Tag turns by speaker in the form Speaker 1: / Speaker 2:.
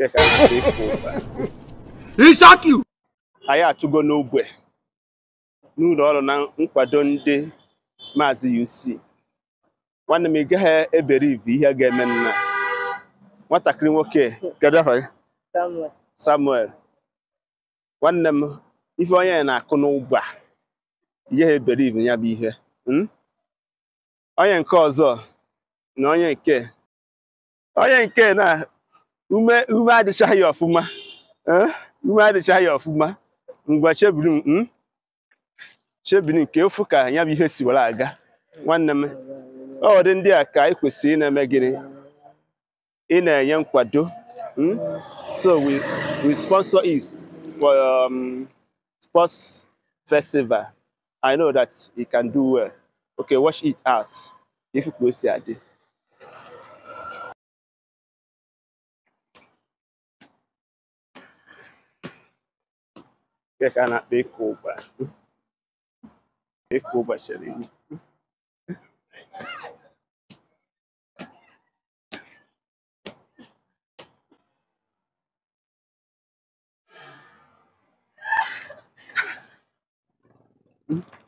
Speaker 1: anyị
Speaker 2: atụgo n'ogbe n'ụlọ ọrụ na nkwado ndị maazị UC nwanne m ị gaghị ebere ive ihe ga-eme nna nwatakịrị nwoke kedu afa gị Samuel nwanne m ife onye na-akụ n'ụgbọ a ihe ebere ive ya bụ ihe hmm? onye nke ọzọ na onye nke onye nke na ume ume adịchaghị ya ọfụma eh? ume adịchaghị ya ọfụma ngwa chebiri m hmm? chebiri nke ofu ka ya bụ ihe si were aga nwanne m ọ dị ndị a ka anyị kwesịrị na-eme gịnị ị na-enye nkwado hmm? so we we sponsor is for um, sports festival I know that you can do well okay watch it out
Speaker 1: If ka si adị que é canal de Cuba. De Cuba, xerinho. Mm-hmm.